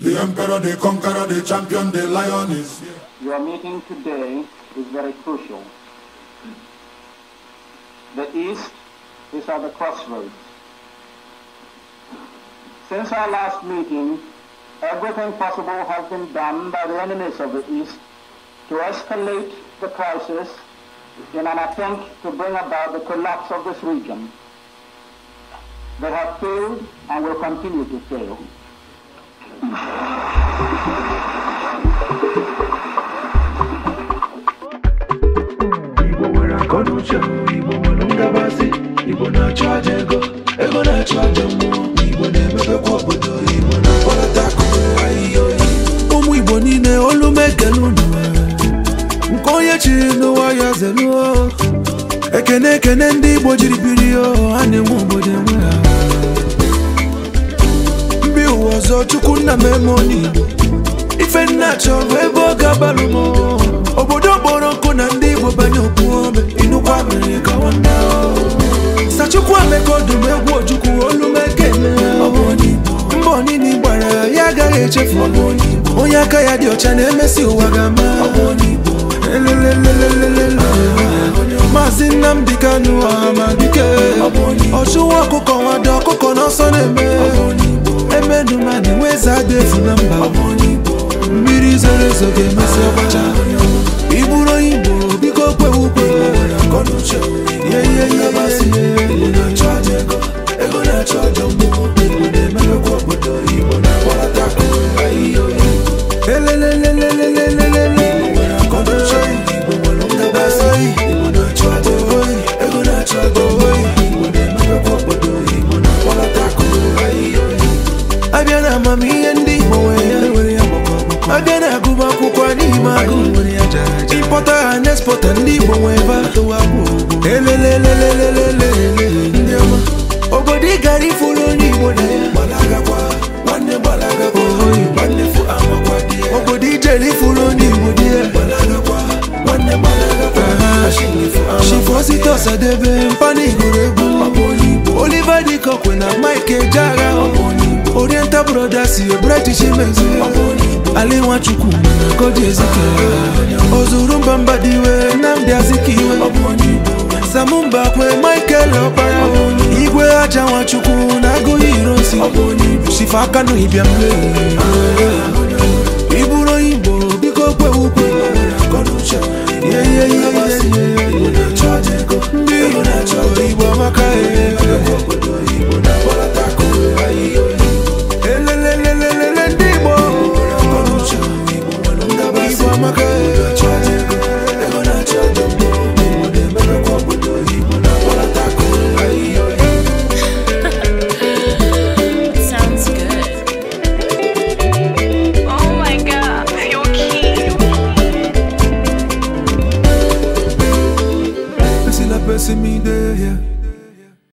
The emperor, the conqueror, the champion, the lion is here. Your meeting today is very crucial. The East is at the crossroads. Since our last meeting, everything possible has been done by the enemies of the East to escalate the crisis in an attempt to bring about the collapse of this region. They have failed and will continue to fail. Igbo nwere akọ n'uche Igbo nwere ngabasị Igbo na-achụ aja na-achụ aja mmụọ Igbo na-emebekwa na-akpọlata akụkụ ahịhịa oyi ụmụ Igbo niile olu m ekele unu nke onye chiri n'ụwa ya zeluo ekene ekene ndị Igbo jiri biri ha na-enwe obodo enwe ha Tochukwu nna m emoni ife nna chọrọ ebe ọ ga agbalụ m obodo kpọrọ nkụ na ndị Igbo banye okwuome inukwa mere gawa Sachukwu Emeka ọdụm egwu Ojukwu olumeke mba onini gbara ya agaghị echefu onye aka ya dị ọcha na-emesi ụwa ga-ama Maazị Nnamdi Kanu ọha ma dike ọchụwa ọkụkọ nwado ọkụkọ n'ọsọ na-eme emedu mani weza defu na mba mmiri zoro ezo ga biko abịa na-agụbụ akwụkwọ n'ime agụ ịpọta ha na ndị Igbo nwee ebe atụwa ndị ọma obodo ị gara ifuru onye Igbo na ya obodo ijere ifuru onye Igbo di ya shifo site ọsadebe mpanigoro egwu Oliver Dịka na Mike Ejeagha brothers ihe british mezi ala nwachukwu koji ezike ozuru mba mba dị iwe na ndị nnamdị azikiwe samumba kwe michael ọkpara igwe aja nwachukwu na agụghị irosi shifa aka n'ịbịa mmeri see me there, yeah.